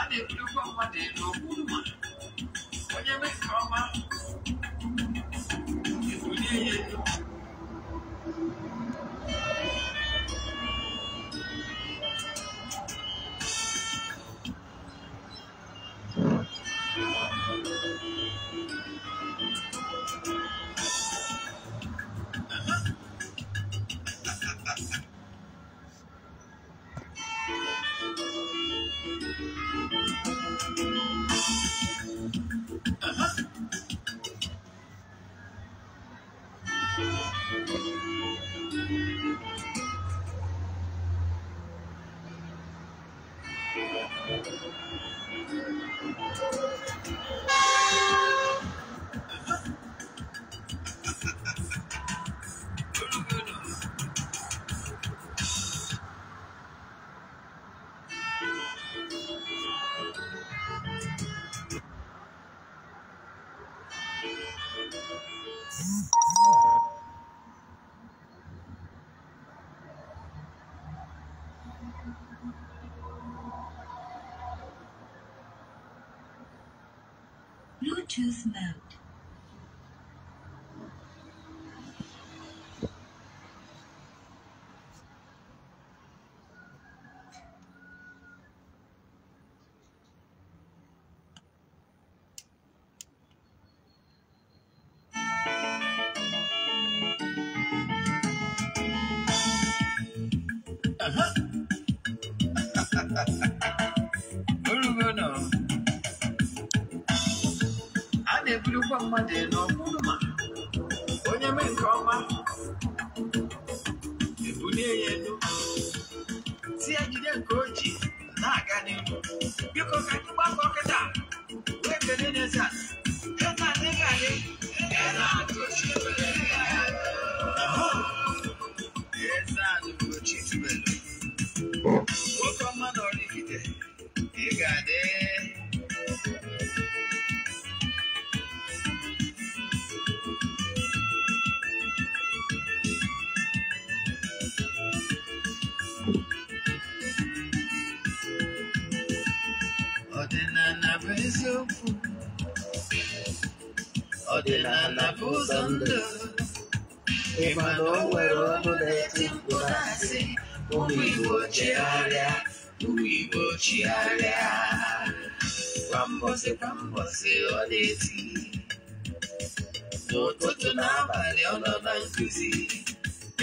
a na ụgbọ mmadụ elu okwu mma onye mee nke ọma Bluetooth mode. na anapụ ụzọ ndụ ịma na o nwere ọnụ na-eti mkpu na-asị ụmụ igbo chigharịa ụmụ igbo chigharịa kwa mbọsị mbọsị ọ na n'ụtụtụ na abalị ọ nọ na nkuzi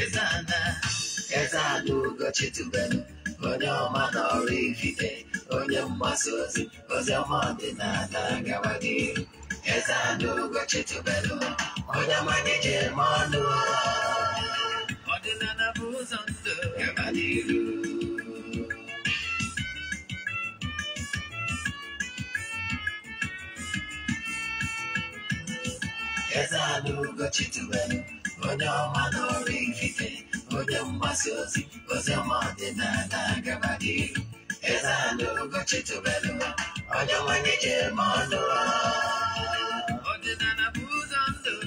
ezana ezana onye ọma na ọrụ ifite onye mgbasa ozi ozi ọma ọdịnala ezeanụgo chitubelu onye manya ji eme ọnụ ọdịnala na ụzọ ndụ gaba n'iru ezeanụgo chitubelu onye ọma n'ọrụ ikike onye mgbasa ozi oziọma ọdịnala gaba n'iru ezeanụgo chitubelu onye manya ji eme ọnụ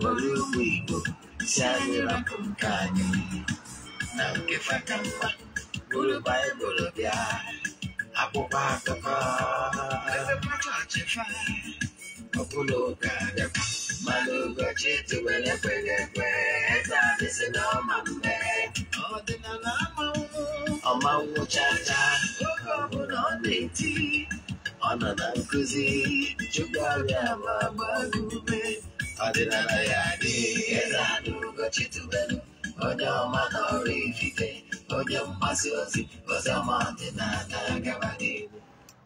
Ulimwengu shazira kumkani na ukifata mwa gulubaye gulubya hapo patoka okuluka malugo chituwele kwegekwe tabisinamambe ọmawu chacha oge ọbụla ọ na-eti ọ nọ na nkụzi chukwu ọrịa ma gbaa ume ọdịnala ya adịghị eze anụgochi tubelu onye ọma n'ọrụ ifife onye mgbasa ozi oziọma ọdịnala gabadịgbo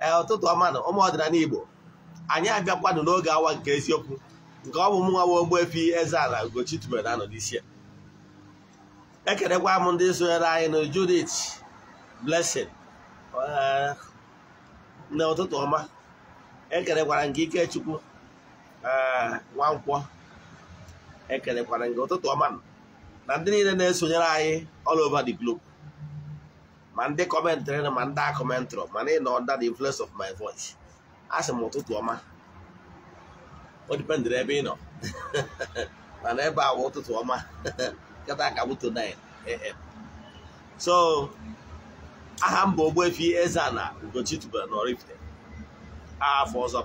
ee ụtụtụ ọmanụ ụmụ ọdịnala igbo anyị abịakwanụ n'oge awa nke eziokwu nke ọ bụ mụnwa nwa Ogbuefi Eze-Ana Ugochi tubelu anọ n'isi ya ekelekwa m ndị sonyere anyị na Judith Blessing na ụtụtụ ọma ekerekwara nke Ikechukwu nwa nkwọ ekelekwara nke ụtụtụ ọma na ndị niile na-esonyere anyị all over the globe ma ndị kọmentịrị ma ndị akọmentrị mana ị nọ under the influence of my voice a sị m ụtụtụ ọma o ebe ị nọ mana ebe a ụtụtụ ọma nkata aka 9 a.m. so aha mba bụ efi Eze-Ana Ugochi tubelu n'Oraifite afọ ọzọ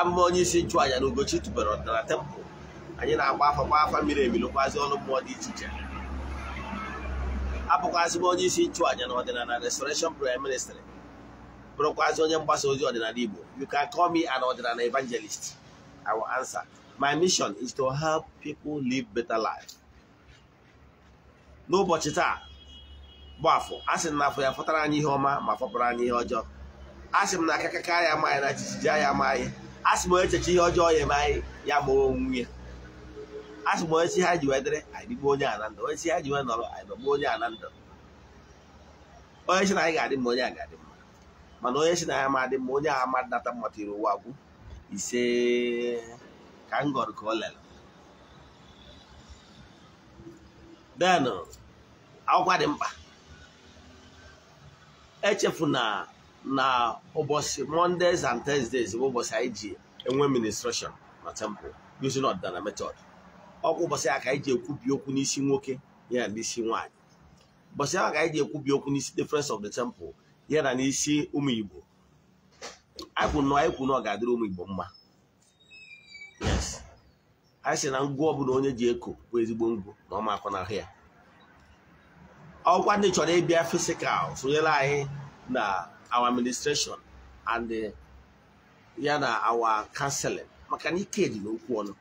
amụma onye isi nchụàja na Ugochi tụbere ọdịnala tempụl anyị na-agba afọ gba afa mmiri emilụkwazi ọnụ mmụọ dị iche iche abụkwazị m onye isi nchụàja na ọdịnala restoration prayer ministry bụrụkwazị onye mgbasa ozi ọdịnala Igbo you can call me an ọdịnala evangelist I will answer my mission is to help people live better life n'ụbọchị taa bụ afọ a sị na afọ ya fọtara anyị ihe ọma ma fọpụrụ anyị ihe ọjọọ a sị m na aka ya ma anyị na jijiji ya ma anyị asị m echecha ihe ọjọọ ya ebe anyị ya mụrụ onwe ya asị m onye si ha ji wee dịrị anyị onye a ndụ onye si ha ji wee nọrọ anyị onye na ndụ onye si na anyị ga-adị mma onye a ga-adị mma mana onye si na ya ma adị mma onye a ma data mma tiri ụwa gwụ ise ka m gọrọ ka ọ lere den akwụkwọ dị mkpa echefu na na ụbọchị mondays and thursdays bụ ụbọchị anyị ji enwe ministration na temple using ọdịnala method ọkwa ụbọchị a ka anyị ji ekwubi okwu n'isi nwoke ya na n'isi nwanyị. ụbọchị ahụ ka anyị ji ekwubi okwu n'isi difference of the temple ya na n'isi ụmụ igbo anyị kwuru na ọ ga-adịrị ụmụ igbo mma yes anyị si na ngwụ ọbụla onye ji eko bụ ezigbo ngwụ na ọma akọ n'ahụ ya ọkwa ndị chọrọ ịbịa fisikal sonyere anyị na our administration and ya na our counseling maka na ike dị n'okwu ọnụ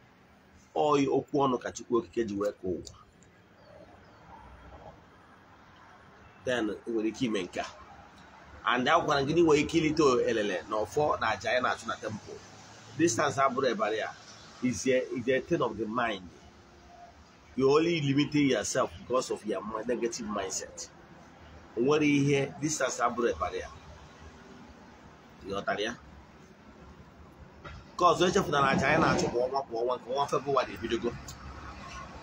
oyi okwu ọnụ ka Chukwu Okike ji wee kọọ ụwa then nwere ike ime nke a and a gwara gị na inwere ike ilite elele na ọfọ na aja ya na-achụ na temple distance abụrụ ebara ya is a is a thing of the mind you only limiting yourself because of your negative mindset nwere ihe distance abụrụ ebara ya ghọtara ya nke ọzọ echefutara aja anyị na achụpụ kwa ọnwa kwa ọnwa nke ọnwa febụwarị ebidogo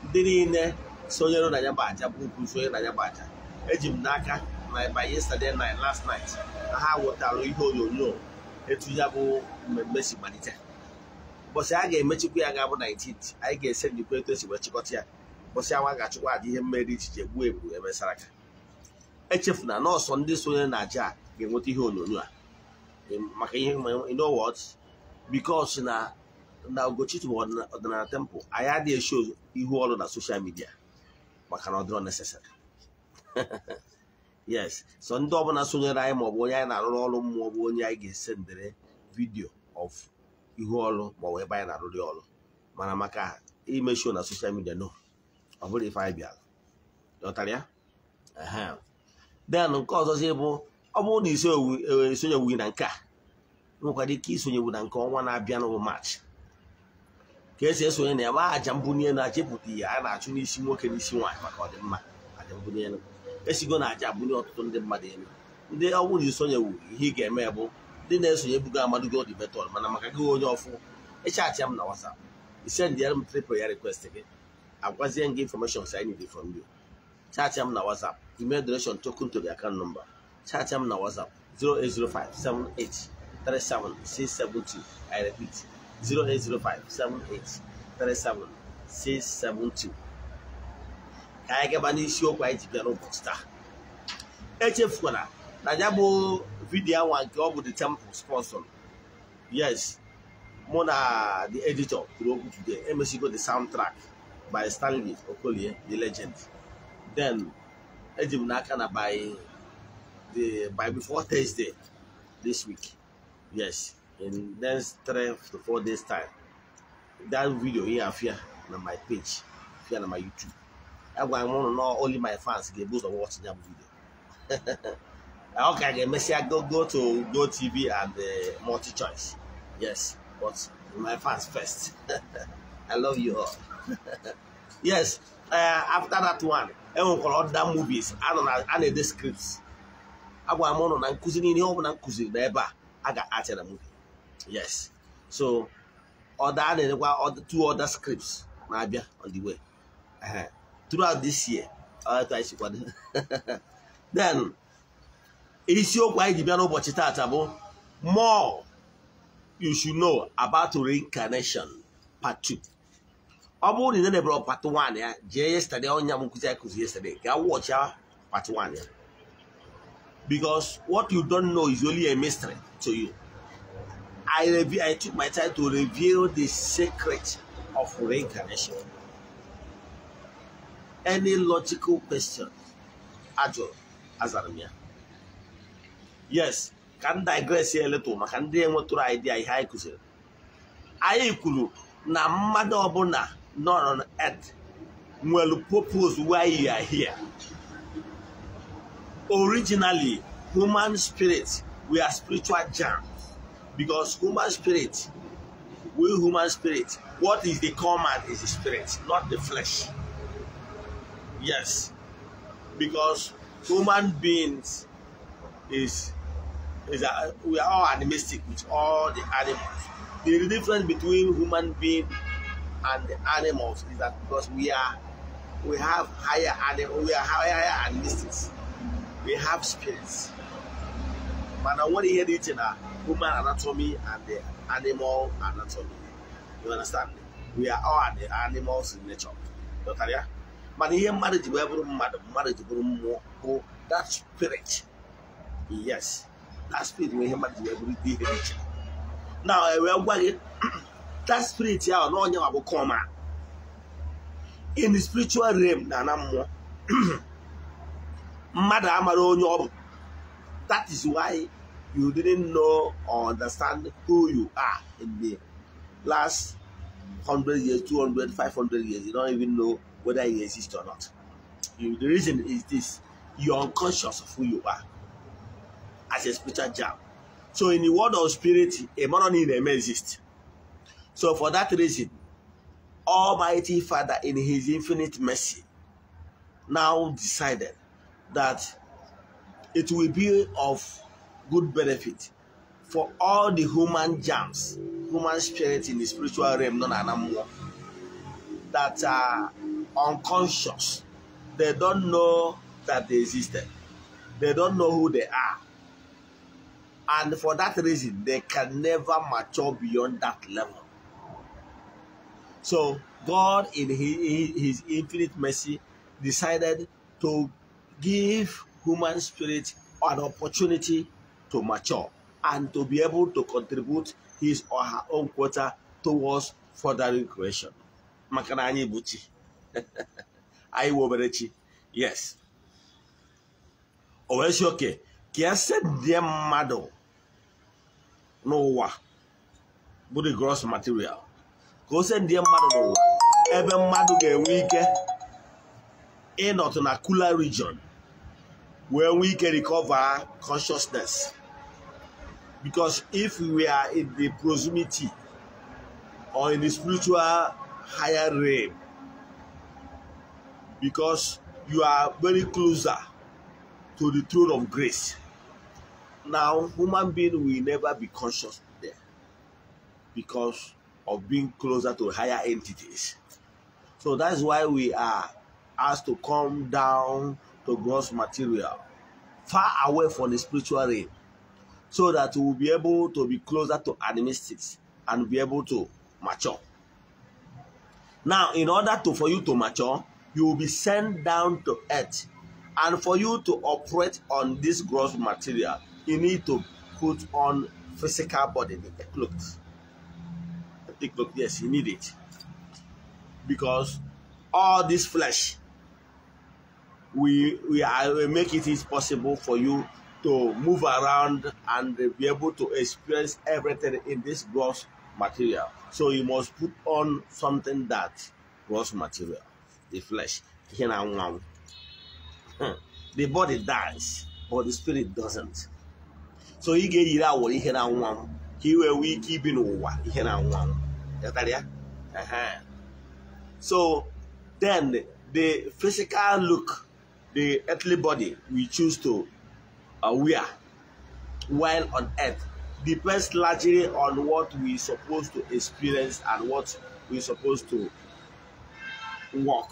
ndị niile sonyere na ya bụ aja bụ ukwu sonye na ya aja eji m n'aka na ịba yesterday night last night na ha wetara ihe onyonyo etu ya bụ mmemme si malite ụbọchị a ga-emechikwa ya ga-abụ 19th anyị ga-ese ndikwa etu esi wee chịkọta ya ụbọchị awa ga-achụkwa aja ihe mmeri ichiche gbuo egbu emesara aka echefuna nọọsụ ndị sonyere na aja a ga-enweta ihe onyonyo a maka ihe you know what because na na Ugochitwu bụ ọdịnala temple anyị adịghị esho ihu ọrụ na social midia maka na ọ dịrọ necessary yes so ndị ọbụla sonyere anyị maọbụ onye anyị na-arụrụ ọrụ maọbụ onye anyị ga esendere ndere vidio of ihu ọrụ maọbụ ebe anyị na-arụrụ ọrụ mana maka ime na social midia no ọ bụrụ ife anyị bịara lọtara ya then nke ọzọzi bụ ọ bụrụ na isonyewu e, e, na nke a nwekwara ike isonyewu na nke ọnwa na-abịa n'ụbụ maachị ka esi esonye na ya aja mbunye na aja ihe a na-achụ n'isi nwoke n'isi nwaanyị maka ọdịmma aja mbunye esigo na aja abụnye ọtụtụ ndị mmadụ elu ndị ọ bụrụ na isonyewu ihe ị ga-eme bụ ndị na-esonye bugo amadugo dị mana maka gị onye ọfụ ịchaachị m na wasap isend m tripl ya request gị agwazie gị infọmeshọn sin dị from you chaachị m na wasap email donation token to the account number chatịa m na WhatsApp 672 I repeat 672. ka anyị gaba n'isiokwu anyị ji bịa n'ụbọchị taa echefukwana na ya bụ vidiyo awa nke ọ bụ the temple sponsor yes mụ na the editor kwuru okwu today emesigo the soundtrack by Stanley Okolie the legend then eji m n'aka na by the by before Thursday this week. Yes, in next three to four days time. That video here here on my page, here on my YouTube. I want to know only my fans get boost of watching that video. okay, I can I go go to Go TV and uh, multi choice. Yes, but my fans first. I love you all. yes, uh, after that one, I called other movies. I don't know, I the scripts. agwara m ụlọ na nkụzi niile ihe ọbụla nkụziri na ebe a a ga-atịra m yes so ọda a na-enyekwa two other scripts na-abịa on the way throughout this year then isiokwu anyị ji bịa n'ụbọchị taata bụ more you should know about reincarnation part two ọ bụrụ na ị na-ebere part 1 ya jee yesterday ọnya m nkụzi anyị kụzi yesterday ga wọchịa part 1 ya because what you don't know is only a mystery to you. I, reveal, I took my time to reveal the secret of reincarnation. Any logical question, Ajo Azarmia. Yes, can digress here a little maka ndị enwetụrụ idea ihe anyị kụziri. Anyị kwuru na mmadụ ọbụla nọ na earth nwere purpose why you are here originally human spirits we are spiritual germs because human spirit we human spirit what is the common is the spirit not the flesh yes because human beings is is a, we are all animistic with all the animals the difference between human being and the animals is that because we are we have higher animal we are higher, animistics. we have spirits mana nwere ihe dị iche na human anatomy and the animal anatomy you understand we are all the animals in nature dọtara mana ihe mmadụ ji wee bụrụ mmadụ mmadụ buru bụrụ mmụọ bụ that spirit yes that spirit bụ ihe mmadụ ji wee bụrụ ihe dị iche na wee gwa that spirit ahụ na onye wa ah. in the spiritual realm na na mmụọ mmadụ amara onye ọ bụ that is why you didn't know or understand who you are in the last 100 years 200 500 years you don't even know whether you exist or not the reason is this you are unconscious of who you are as a spiritual jam so in the world of spirit a man may exist so for that reason almighty father in his infinite mercy now decided that it will be of good benefit for all the human germs, human spirit in the spiritual realm, non animal, that are unconscious. They don't know that they existed. They don't know who they are. And for that reason, they can never mature beyond that level. So God, in His, his infinite mercy, decided to give human spirit an opportunity to mature and to be able to contribute his or her own quota towards furthering creation. maka na anyị bụ chi anyị wụ obere chi yes o wee si oke ka ya e sedie mmadụ n'ụwa bụ the gross material ka o sedie mmadụ n'ụwa ebe mmadụ ga-enwe ike ịnọtụ na cooler region when we can recover consciousness. Because if we are in the proximity or in the spiritual higher realm, because you are very closer to the throne of grace. Now, human being will never be conscious there because of being closer to higher entities. So that's why we are asked to come down to gross material, far away from the spiritual realm, so that we will be able to be closer to animistics and be able to mature. Now, in order to for you to mature, you will be sent down to earth. And for you to operate on this gross material, you need to put on physical body, the look. The clothes, yes, you need it. Because all this flesh we we are, make it is possible for you to move around and be able to experience everything in this gross material. So you must put on something that gross material, the flesh. Hmm. The body dies, but the spirit doesn't. So ị ga-eyiri awọrọ ihe na nwa m ka ị nwee ike ibi n'ụwa ihe na nwa m. So then the physical look the earthly body we choose to uh, wear while on earth depends largely on what we supposed to experience and what we supposed to work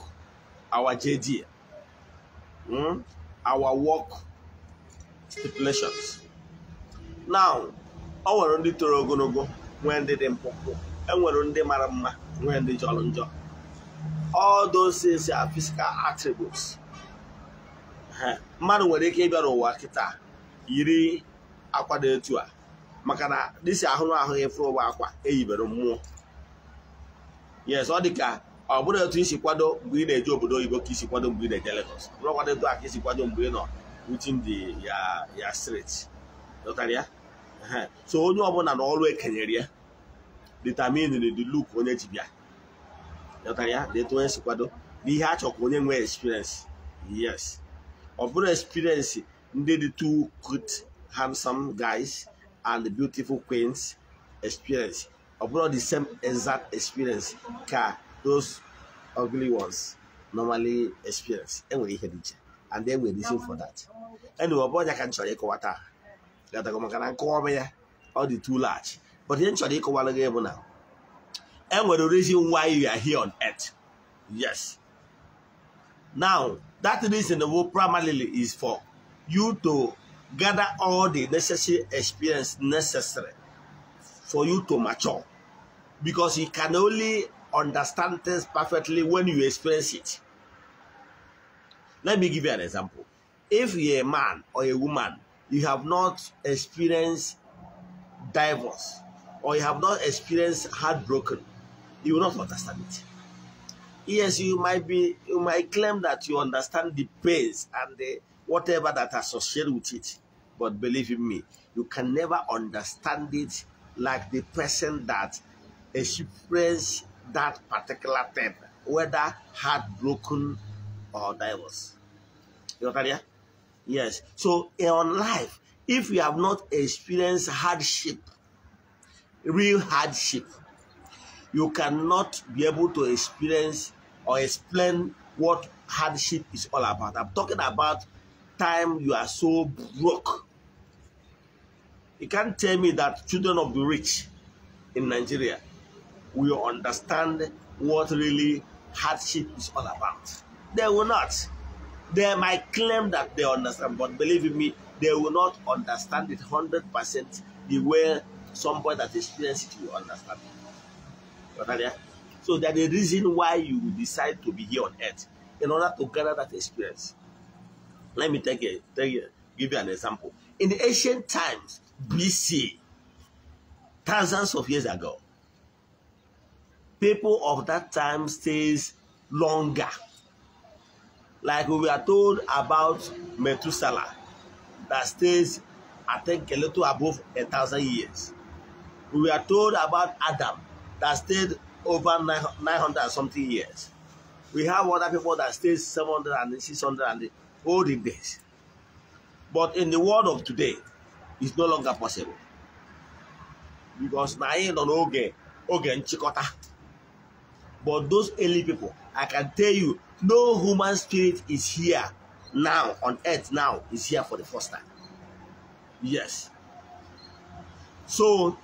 our JD, hmm? our work stipulations. Now, ọ nwere ndị toro ogologo nwee ndị dị mkpụmkpụ enwere ndị mara mma nwee ndị jọrọ njọ all those things are physical attributes mmadụ nwere ike ịbịara ụwa kịta yiri akwa dị etu a maka na dịsi ahụrụ ahụ ịfụrụ ụwa akwa eyibere mmụọ yes ọ dị ka ọ bụrụ etu isi kwado mgbe ị na-eje obodo oyibo ka isi kwado mgbe ị na-eje Lagos kwado etu a ka isi kwado mgbe ị nọ within the ya ya steeti dọtara ya so onye ọbụla na ọrụ ekenyere ya determine the look onye ji bịa dọtara ya detu onye si kwado na ihe a chọrọ ka onye nwee experience yes ọ experience ndị dị two good handsome guys and beautiful queens experience ọ the same exact experience ka those ugly ones normally experience enwere ihe dị iche and then we're reason for that anyway ọbụ bụrụ ka m chọrọ ịkọwa taa gatago maka na nkọwa ya ọ dị too large but ihe m chọrọ ịkọwara gị bụ na enwere reason why you are here on earth yes now That reason primarily is for you to gather all the necessary experience necessary for you to mature. Because you can only understand things perfectly when you experience it. Let me give you an example. If you're a man or a woman, you have not experienced divorce or you have not experienced heartbroken, you will not understand it. Yes, you might be, you might claim that you understand the pains and the whatever that associated with it, but believe in me, you can never understand it like the person that experienced that particular thing, whether heartbroken or divorce. You understand? Yes. So in life, if you have not experienced hardship, real hardship, you cannot be able to experience or explain what hardship is all about. I'm talking about time you are so broke. You can't tell me that children of the rich in Nigeria will understand what really hardship is all about. They will not. They might claim that they understand, but believe me, they will not understand it 100% the way somebody that experiences it will understand it. You understand? So that the reason why you decide to be here on earth in order to gather that experience. Let me take a, take a, give you an example. In the ancient times, BC, thousands of years ago, people of that time stays longer. Like we are told about Methuselah, that stays, I think, a little above a thousand years. We are told about Adam, that stayed over 900 something years. We have other people that stay 700 and 600 and olden days. But in the world of today, it's no longer possible. Because na anyị nọ n'oge oge nchịkọta. But those early people, I can tell you, no human spirit is here now on earth now is here for the first time. Yes. So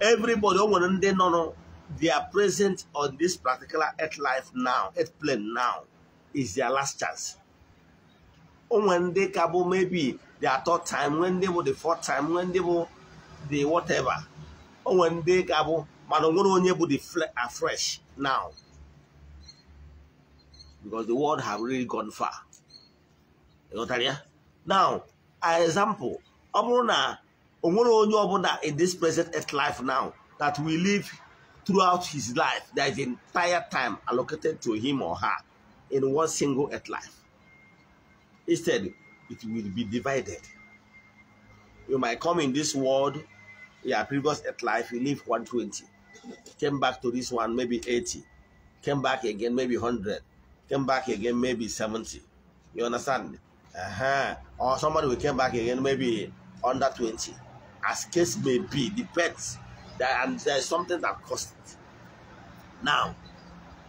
everybody o nwere no nọ they are present on this particular earth life now, earth plane now, is their last chance. Oh, when they cabo oh, maybe their third time, when they were the fourth time, when they were the whatever. Oh, when they cabo, oh, Madongoro onye will be afresh uh, now. Because the world have really gone far. You got know Now, an example, gonna know about that in this present earth life now that we live throughout his life. There is entire time allocated to him or her in one single earth life. Instead, it will be divided. You might come in this world, your previous earth life, you live 120. Came back to this one, maybe 80. Came back again, maybe 100. Came back again, maybe 70. You understand? Uh-huh. Or somebody will come back again, maybe under 20. As case may be, depends and there's something that costs it. Now,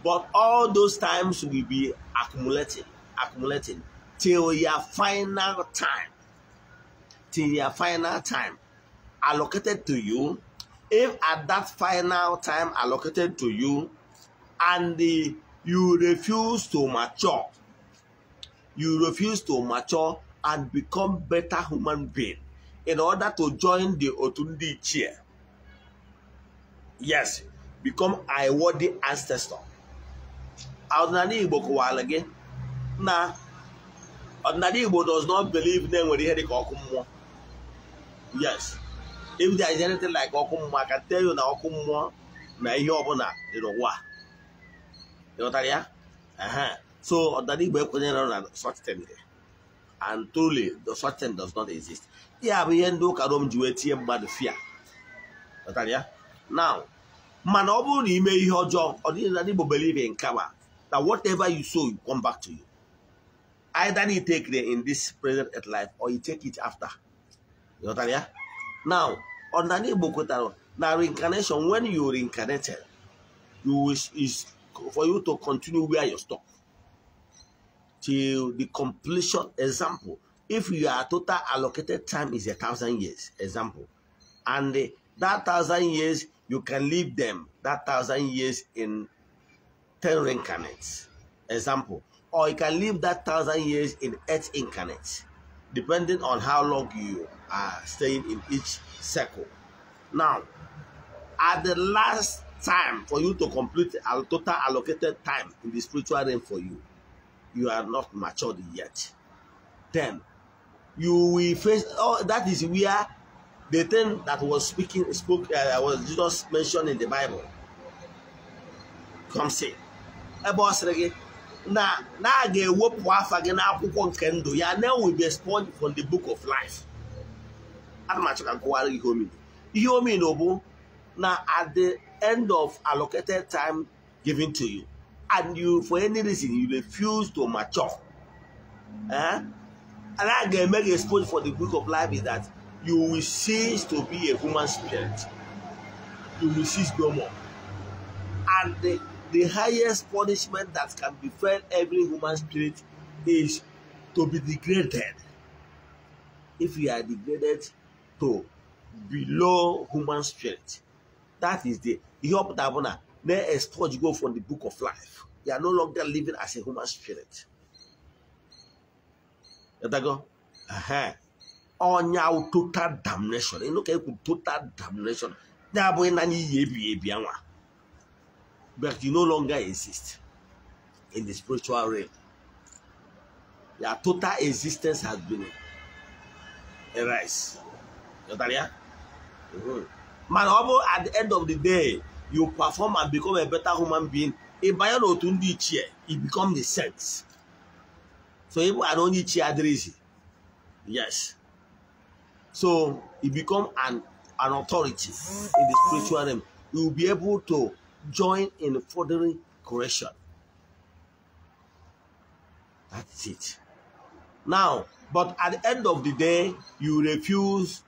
but all those times will be accumulating, accumulating till your final time. Till your final time allocated to you. If at that final time allocated to you, and the, you refuse to mature, you refuse to mature and become better human being in order to join the Otundi chair yes become a worthy ancestor ọdịnala igbo gị na ọdịnala igbo does not believe na enwere ihe dịka ọkụ mmụọ yes if there is anything like ọkụ mmụọ I can tell you na ọkụ mmụọ na ihe ọbụla dị n'ụwa ịghọtara ya so ọdịnala igbo ekwenyere na such thing and truly the such thing does not exist ya bụ ihe ndị ụka Rom ji wee tinye mmadụ fia ịghọtara ya now man, ọ may na ime or ọjọọ ọ believe in karma that whatever you sow you come back to you either you take it in this present life or you take it after ịghọtara ya now ọdịnala Igbo kwetara Now, reincarnation when you reincarnated you wish is for you to continue where you stop till the completion example if your total allocated time is a thousand years example and that thousand years you can leave them that thousand years in ten reincarnates. Example. Or you can live that thousand years in eight incarnates, depending on how long you are staying in each circle. Now, at the last time for you to complete a total allocated time in the spiritual realm for you, you are not matured yet. Then you will face, oh, that is where the thing that was speaking spoke uh, was Jesus mentioned in the Bible. Come see. Ebe ọ sịrị now na na a ga-ewepụ afa gị n'akwụkwọ nke ndụ ya na will be expunged from the book of life. I'm not achọ ka nkụwara ihe omino. Ihe omino bụ Now, at the end of allocated time given to you and you for any reason you refuse to mature. Eh? And I ga make a expunged for the book of life is that you will cease to be a human spirit. You will cease no more. And the, the highest punishment that can befell every human spirit is to be degraded. If you are degraded to below human spirit, that is the Ihob Dabona. May a go from the book of life. You are no longer living as a human spirit. Let that go. Uh-huh. ọnya total damnation ịnụ ka ekwu total damnation ya abụghị na iyi ebighị ebi anwa but you no longer exist in the spiritual realm your total existence has been erased ya mana ọ bụ at the end of the day you perform and become a better human being ị banye n'otu ndị ichie e become the sense so ịbụ na onye ichie adịrịghị yes So you become an, an authority in the spiritual realm. You will be able to join in furthering correction. That's it. Now, but at the end of the day, you refuse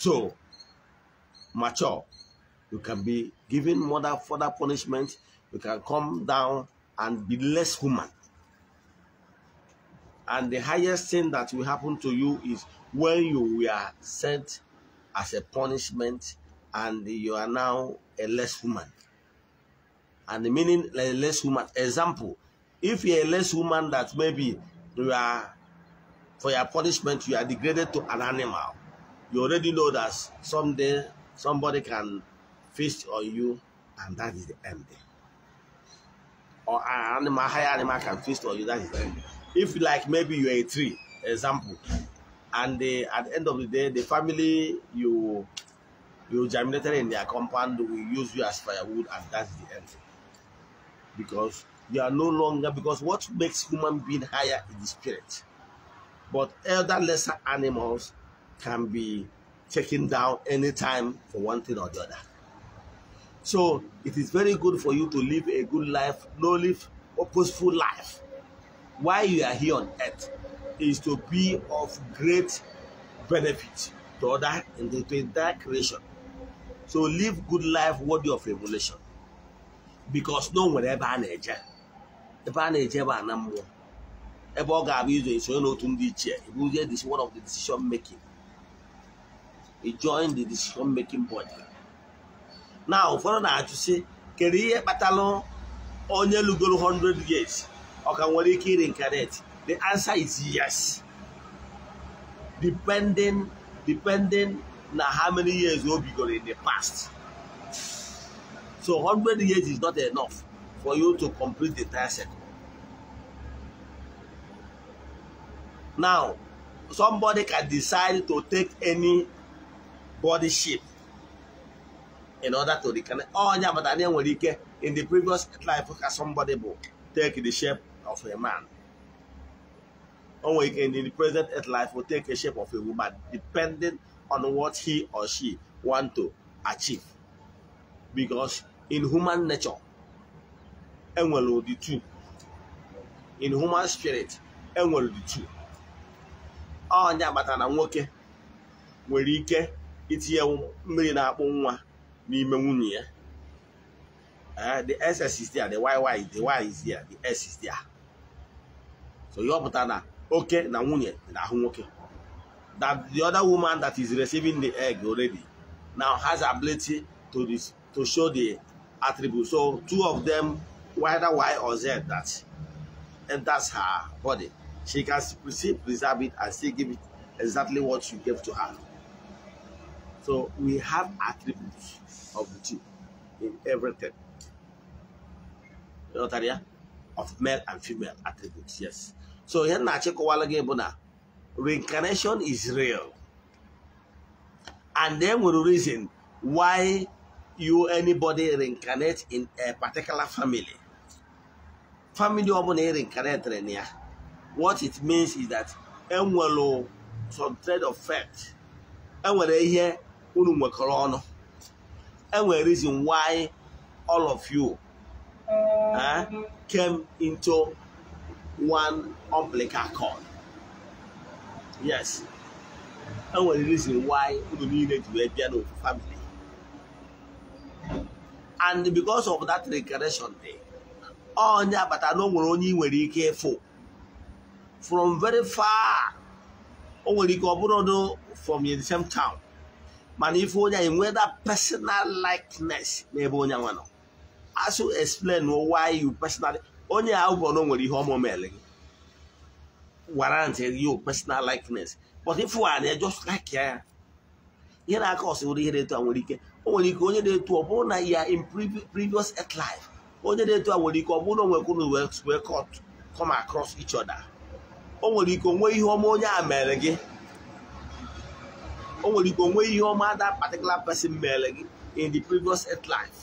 to mature. You can be given more further punishment. You can come down and be less human. And the highest thing that will happen to you is when you were sent as a punishment and you are now a less woman. And the meaning a less woman. Example, if you're a less woman that maybe you are for your punishment, you are degraded to an animal. You already know that someday somebody can feast on you, and that is the end. Or an animal, higher animal can feast on you, that is the end if like maybe you're a tree example and at the end of the day the family you you germinated in their compound will use you as firewood and that's the end because you are no longer because what makes human being higher is the spirit but elder lesser animals can be taken down anytime for one thing or the other so it is very good for you to live a good life no live purposeful life why you are here on earth is to be of great benefit to other in the to entire creation. So live good life worthy of revelation. Because no one ever a na-eje ebe a na-eje ebe a na mmụọ ebe ọ ga-abụ izo isonye n'otu ndị ichie ibuzie this one of the decision making e join the decision making body Now, ụfọdụ na-ajụ sị kedu ihe kpatara onye lugoro 100 years Or can we reincarnate the answer is yes depending depending na how many years you've be going in the past so 100 years is not enough for you to complete the entire cycle now somebody can decide to take any body shape in order to reconnect. Oh, yeah, but I didn't in the previous life. Somebody will take the shape of a man. Onwake in the present earth life will take a shape of a woman depending on what he or she want to achieve. Because in human nature, enwere ụdị two. In human spirit, enwere ụdị two. Onye agbata na nwoke nwere ike itinye mmiri na-akpụ nwa n'ime nwunye ya. Eh, the S is there, the YY is the Y is there, the S is there. so ihe ọ pụtara na na nwunye na that the other woman that is receiving the egg already now has ability to, this, to show the attribute so two of them whether Y or Z that enters her body she can still preserve it and still give it exactly what you gave to her so we have attributes of the two in everything you know, of male and female attributes yes so ihe nna achịkọwala gị bụ na reincarnation is real and then we reason why you anybody reincarnate in a particular family. Family ọ bụla reincarnate na ya what it means is that enwere some thread of fact enwere ihe unu nwekọrọ ọnụ enwere reason why all of you uh, came into one umbilical cord yes e nwere reason why unu niile to be a piano family and because of that regression day onye abata na o onye ị nwere ike ịfụ from very far o nwere ike ọ bụrụ from the same town mana if onya anyị that personal likeness n'ebe onya nwa as you explain why you personally onye a ụgwọ nwere ihe ọmụ ọmụmele gị warrant you personal likeness but if you are just like ya ihe na-aka ọsị ihe na-eto a nwere ike o nwere ike onye na-eto ọ bụrụ na ya in previous life onye na-eto a nwere ike ọ bụrụ na onwekwuru wee cut come across each other o nwere ike onwe ihe ọma onye a mere gị o nwere ike onwe ihe ọma that particular person mere gị in the previous life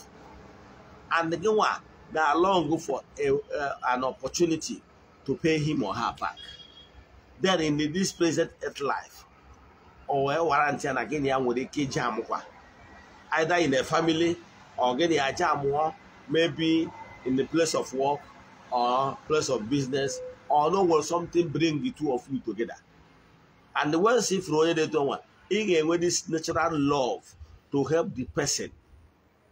and gị nwa That are long for a, uh, an opportunity to pay him or her back. Then in this present earth life, or a warranty and again, ya nwere a iji amụkwa. Either in a family, or getting a aja amụọ, maybe in the place of work, or place of business, or no will something bring the two of you together. And once if you they don't want, he gave this natural love to help the person,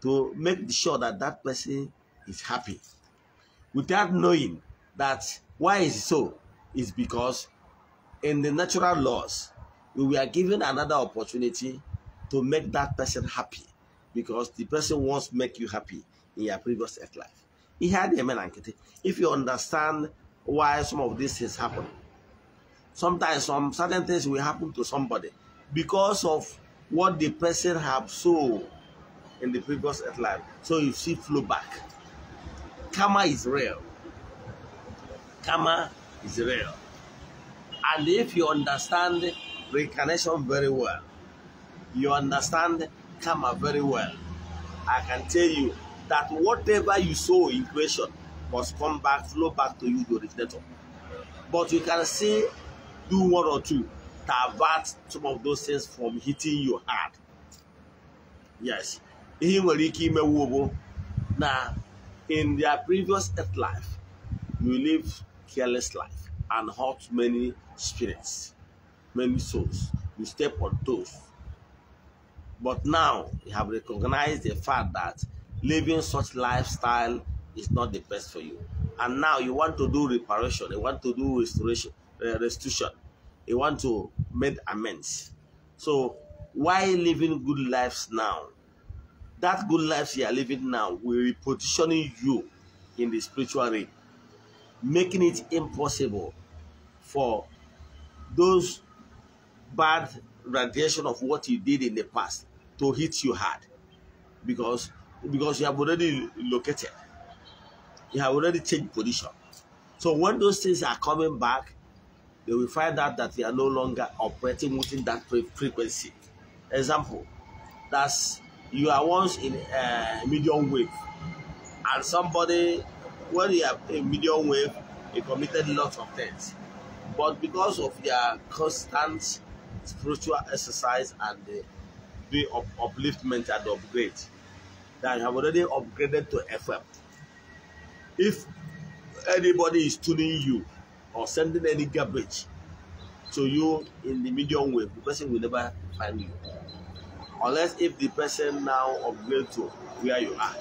to make sure that that person is happy without knowing that why is so is because in the natural laws we were given another opportunity to make that person happy because the person wants to make you happy in your previous life. He had a man If you understand why some of these things happen, sometimes some certain things will happen to somebody because of what the person have so in the previous life. So you see flow back. Kama is real. Karma is real. And if you understand reincarnation very well, you understand kama very well, I can tell you that whatever you sow in creation must come back, flow back to you, the originator. But you can see, do one or two to avert some of those things from hitting your heart. Yes. Ihe nwere ike imewu bụ na in their previous earth life, you live careless life and hurt many spirits, many souls. You step on toes. But now you have recognized the fact that living such lifestyle is not the best for you. And now you want to do reparation, you want to do restoration, uh, restitution, you want to make amends. So why living good lives now that good life you are living now will repositioning you in the spiritual realm, making it impossible for those bad radiation of what you did in the past to hit you hard because because you have already located you have already changed position so when those things are coming back they will find out that they are no longer operating within that frequency example that's you are once in a medium wave and somebody when you are in medium wave you committed lots of things but because of your constant spiritual exercise and the, the up upliftment and upgrade that you have already upgraded to FM if anybody is tuning you or sending any garbage to you in the medium wave the person will never find you unless if the person now upgrade to where you are.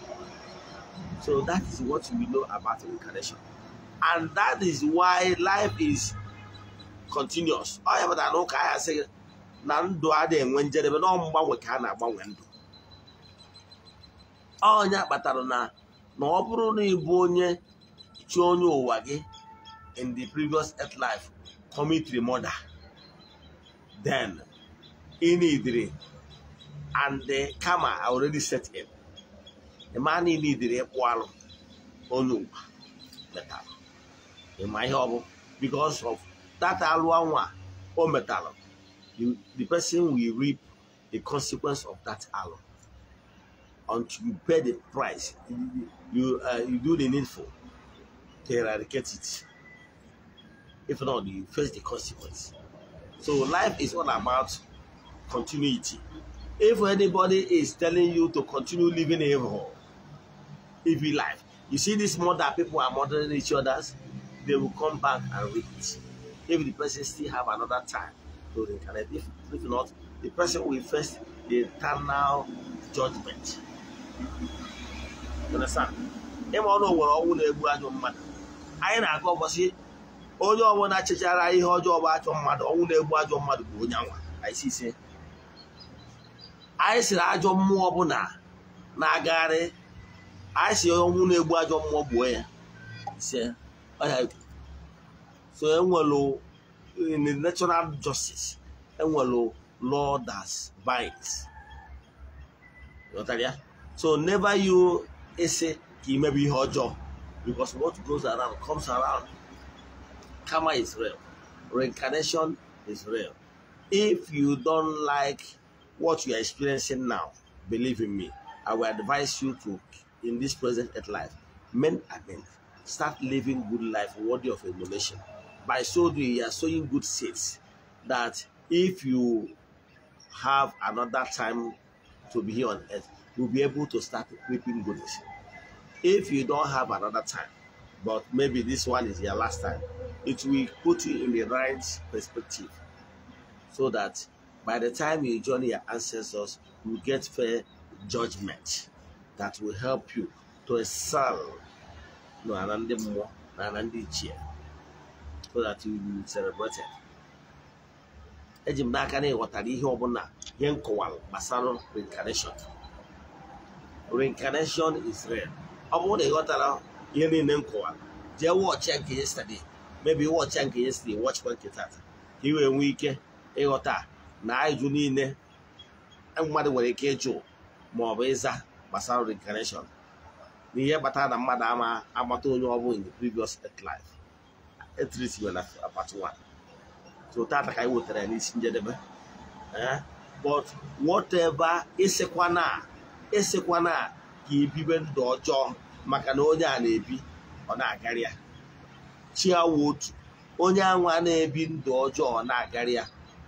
So that is what we know about reincarnation. And that is why life is continuous. Ọ ya pụtara I ahịa sị na ndụ adịghị enwe njedebe na mgbanwe ka a na-agbanwe ndụ. Ọnya kpatara na na ọ bụrụ na ịbụ onye chi onye ụwa gị in the previous earth life commit murder then i idri and the karma already set him. The man he needed a wall onugba metal. In my hobble, because of that alwanwa or oh metal, the, the person will reap the consequence of that alum until you pay the price. You you, uh, you do the needful to eradicate it. If not, you face the consequence. So life is all about continuity. If anybody is telling you to continue living evil, evil life, you see this murder people are murdering each other. they will come back and read it. If the person still have another time to reincarnate, if, if not, the person will face the eternal judgment. You understand? Ịma ọnụ nwere ọnwụ na-egbu ajọ mmadụ. Anyị na-agụ ụbọchị onye ọbụla chechara ihe ọjọọ bụ ajọ mmadụ ọnwụ na-egbu ajọ mmadụ bụ onye anwa. Anyị si ise anyị siri ajọ mmụọ ọbụla na-agagharị anyị si onye ọnwụ na-egbu ajọ mmụọ gbuo ya so enwelu in the natural justice enwelu law that binds ya so never you ese ka imebe ihe ọjọọ because what goes around comes around karma is real reincarnation is real if you don't like what you are experiencing now, believe in me, I will advise you to, in this present earth life, men and men, start living good life worthy of emulation. By so doing, you are sowing good seeds that if you have another time to be here on earth, you'll be able to start reaping goodness. If you don't have another time, but maybe this one is your last time, it will put you in the right perspective so that By the time you join your ancestors, you get fair judgment that will help you to excel n'ala ndị mmụọ na ala ndị ichie so that you will celebrate it. eji m n'aka na ịghọtara ihe ọbụla ihe nkọwara gbasara reincarnation reincarnation is real ọ bụrụ na ịghọtara ihe niile nkọwara jee wọchịa nke yesterday maybe wọchịa nke yesterday wọchịkwa nke tata ka ị wee nwee ike ịghọta na ajụjụ niile e mmadụ nwere ike ịjụ ma ọ bụ ịza gbasara reincarnation ihe kpatara na mmadụ ama agbata onye ọ bụla in the previous life etrisime na part 1 so taata ka anyị wetara ya n'isi njedebe eh? but whatever ịsịkwana ịsịkwana ka ebibe ndụ ọjọọ maka na onye a na-ebi ọ na-agarịa chi awụ otu onye anwa na-ebi ndụ ọjọọ ọ na-agarịa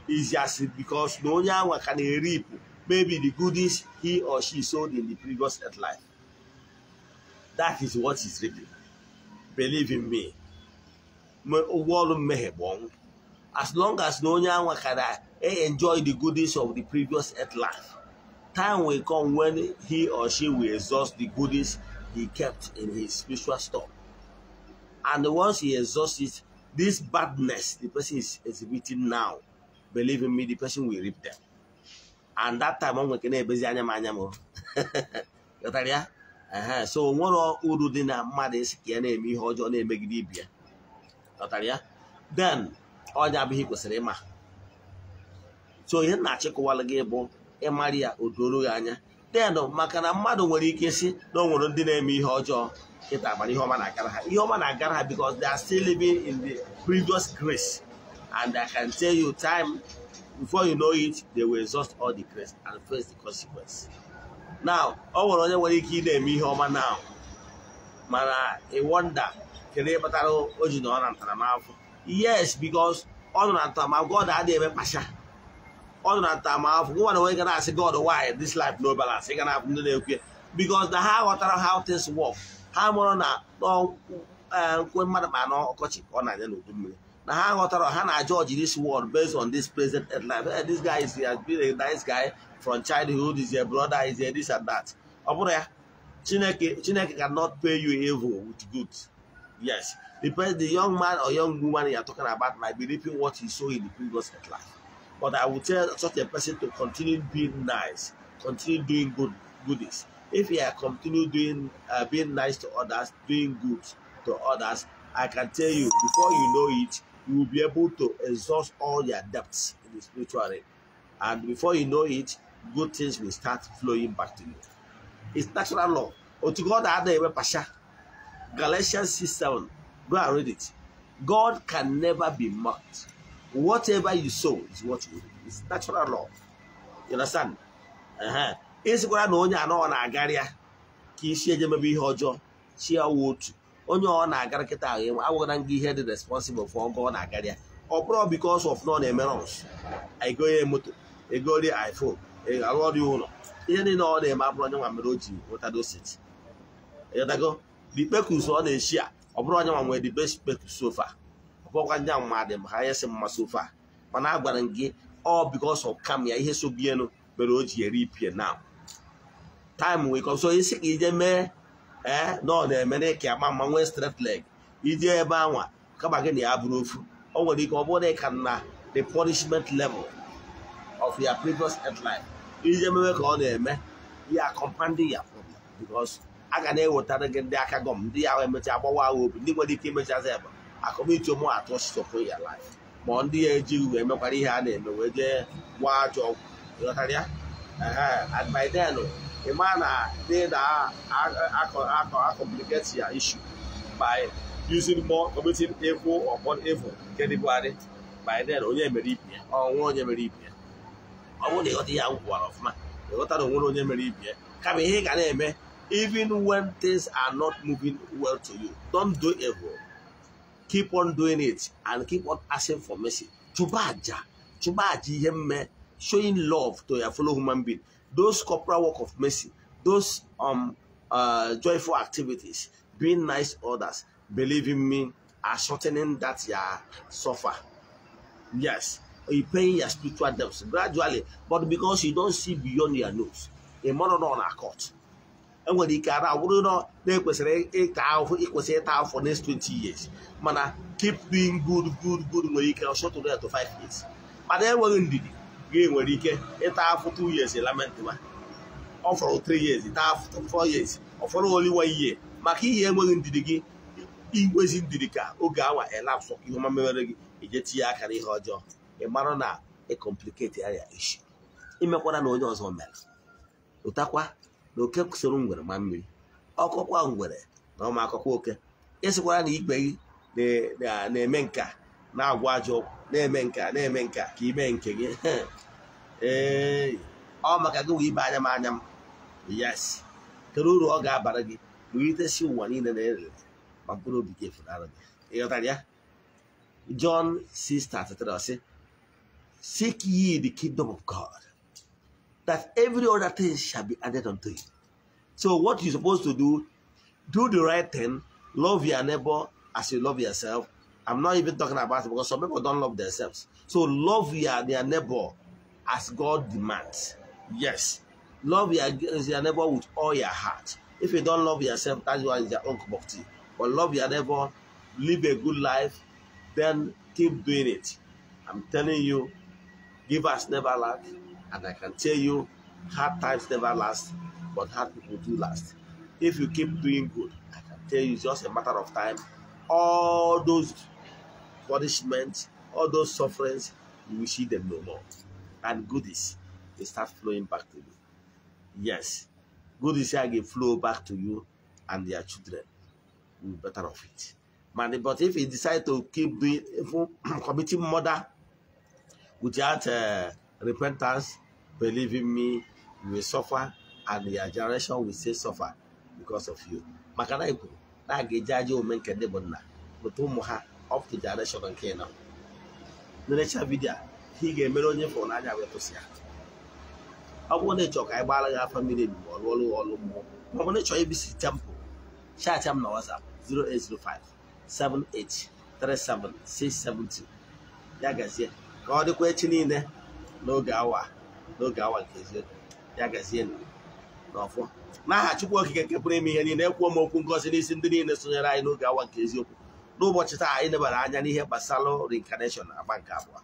is just because no one can reap maybe the goodies he or she sold in the previous earth life. That is what is reaping. Believe in me. As long as no one can eh, enjoy the goodies of the previous earth life, time will come when he or she will exhaust the goodies he kept in his spiritual store. And once he exhausts it, this badness the person is exhibiting now believe in me the person will reap and that time ọ na-ebezi anya m anya m ghọtara so nwere uru dị na mmadụ isi ka ya na-eme ihe ọjọọ na-emegide ibi ya ghọtara then onye abụghị kwesịrị ịma so ihe na-achịkọwalụ gị bụ ịmarị ya o doro anya then maka na mmadụ nwere ike si na o nwere ndị na-eme ihe ọjọọ kịta agbara ihe ọma na-agara ihe ọma na-agara ha because they are still living in the previous grace And I can tell you time, before you know it, they will exhaust all the grace and face the consequence. Now, ọ nwere onye nwere ike ị na-eme ihe ọma na mana ị wonder kedu ihe kpatara o ji nọ na yes because ọ nọ na ntaramahụhụ God adịghị eme mkpacha ọ nọ na ntaramahụhụ gụwa na onye ga na God why this life no balance ị ga na-abụ ndị na-ekwu because na ha ghọtara how things work ha mụrụ na eh, nkwe mmadụ ma na okochi on I don't know. na ha ghọtara ha na judge this world based on this present life hey, eh, this guy is, he has been a nice guy from childhood is your brother is your this and that ọ bụrụ ya chineke chineke cannot pay you evil with good yes the, the young man or young woman you are talking about might be reaping what he saw in the previous life but i would tell such a person to continue being nice continue doing good goodies if you are continue doing uh, being nice to others doing good to others I can tell you before you know it, you will be able to exhaust all your debts in the spiritual realm. And before you know it, good things will start flowing back to you. It's natural law. God Galatians 6 7. Go and read it. God can never be mocked. Whatever you sow is what you reap. It's natural law. You understand? Ịsịkwara na onye anọ na-agarịa ka isi eje mebe chi ya onye ọ na-agara kịta ahụ agwara gị ihe dị responsible for ọgụ ọ na-agara ya ọ bụrụ because of nọ na-eme rọns ego ya moto egori iphone alụọrị ụlọ ihe niile ọ na-eme abụrụ onye nwa mere o ji nwetadosit ịghọtago dikpekus ọ na-echi a ọ bụrụ onye nwa nwere dibespeks sofa ọ bụrụkwa ndị mmadụ ma ha yesi mma sofa mana a gwara gị ọ because of kam ya ihe sobienu mere o ji eri ipie na time wee kọsọ isi ka ije mee ee na ọ na-eme na ịka ama mma nwee straight leg ije ebe anwa kama gị na ya bụrụ ofu o nwere ike ọ bụrụ na ị ka na the punishment level of your previous life ije ememe ka ọ na-eme ya compounding ya problem because a ga na-ewetara gị ndị aka gọm ndị ya emechaa agbawa agha obi ndị nwere ike imechazi ebe akọmitu ụmụ atọ stọpụ ya life ma ndị ya eji uwe emekwara ihe a na-eme wee jee gbaa ajọ ọgwụ adbiden ima na dị na complicate your issue by using more committing evil upon evil nke dị bụgharị by then onye mere ibi ya ọnwa onye mere ibi ya ọ bụrụ na ịghọta ihe ahụ gwara ọfụma ịghọta na onwere onye mere ibi ya kama ihe ị ga na-eme even when things are not moving well to you don do evil keep on doing it and keep on asking for mercy chụba aja chụba aja ihe mme showing love to your fellow human being those corporal work of mercy, those um uh, joyful activities, being nice others, believing me, are shortening that you suffer. Yes, you pay your spiritual debts gradually, but because you don't see beyond your nose, a mother on a court. enwere ike ara wụrụ na na-ekwesịrị ịta ahụhụ ịkwesị ịta ahụ for next 20 years mana keep doing good good good nwere ike short to five years mana enweghị ndidi gị nwere ike ịta afụ 2 years lament ma ọ fọrọ 3 years taa afọ 4 years ọ fọrọ oli ihe maka ihe enweghị ndidi gị igwezi ndidi ka oge awa elapsụ ihe ọma mere gị ije tinye aka n'ihe ọjọọ ị mara na ịkọmpliketi anya ishi imekwara na onye ọzọ mere ụtakwa na oke soro ngwere ma mmiri ọkọkwa ngwere na ọma akọkwa oke ịsịkwara na ikpe gị na-eme nka na-agwa ajọ na-eme nke a na-eme nke a ka ime nke gị ee ọ maka gị wee ibe anya m anya m yes kedu uru ọ ga-abara gị wulitesi ụwa niile na erere ma mkpụrụ obi gị efunara gị ịghọtara ya John 6:33 sị seek ye the kingdom of God that every other thing shall be added unto you so what you supposed to do do the right thing love your neighbor as you love yourself I'm not even talking about it because some people don't love themselves. So love your, neighbor as God demands. Yes. Love your, your neighbor with all your heart. If you don't love yourself, that is one is your own cup of tea. But love your neighbor, live a good life, then keep doing it. I'm telling you, give us never lack, and I can tell you, hard times never last, but hard people do last. If you keep doing good, I can tell you, it's just a matter of time. All those punishment, all those sufferings, you will see them no more. And goodies, they start flowing back to you. Yes, goodies again flow back to you and your children will be better off it. But if you decide to keep doing evil, committing murder without uh, repentance, believe in me, you will suffer and your generation will still suffer because of you. Makana na na a ga-eji aja omume of the direction nke nọ na-erecha vidio a ị ga-emere onye fụrụ n'anya wee kwụsị ya ọ bụrụ na ịchọọ ka anyị gbaara gị afọ mmiri ebigbo ọrụ ọrụ ọrụ mmụọ ma ọ bụ na ịchọọ ibisi tempụ chaatị m na WhatsApp 0805 7837672 ya gazie ka ọ dịkwa echi niile n'oge awa n'oge awa nke eziokwu ya gazie n'ọfọ n'aha Chukwu Okike nke pụrụ ime ihe niile ekwuo m okwu ngozi n'isi ndị niile sonyere anyị n'oge awa nke eziokwu n'ụbọchị taa anyị lebara anya n'ihe gbasara reincarnation agba nke abụọ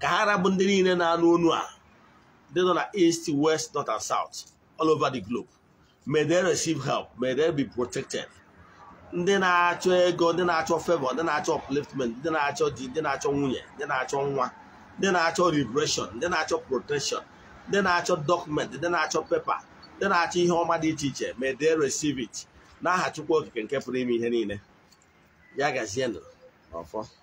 ka ha arabụ ndị niile na-anụ onu a ndị nọ na east west north and south all over the globe may they receive help may they be protected ndị na-achọ ego ndị na-achọ favor ndị na-achọ upliftment ndị na-achọ di ndị na-achọ nwunye ndị na-achọ nwa ndị na-achọ liberation ndị na-achọ protection ndị na-achọ dọkụmentị ndị na-achọ pepa ndị na-achọ ihe ọma dị iche iche may they receive it n'aha Chukwu okike nke pụrụ ime ihe niile ya ó ọfọ